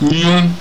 nyụ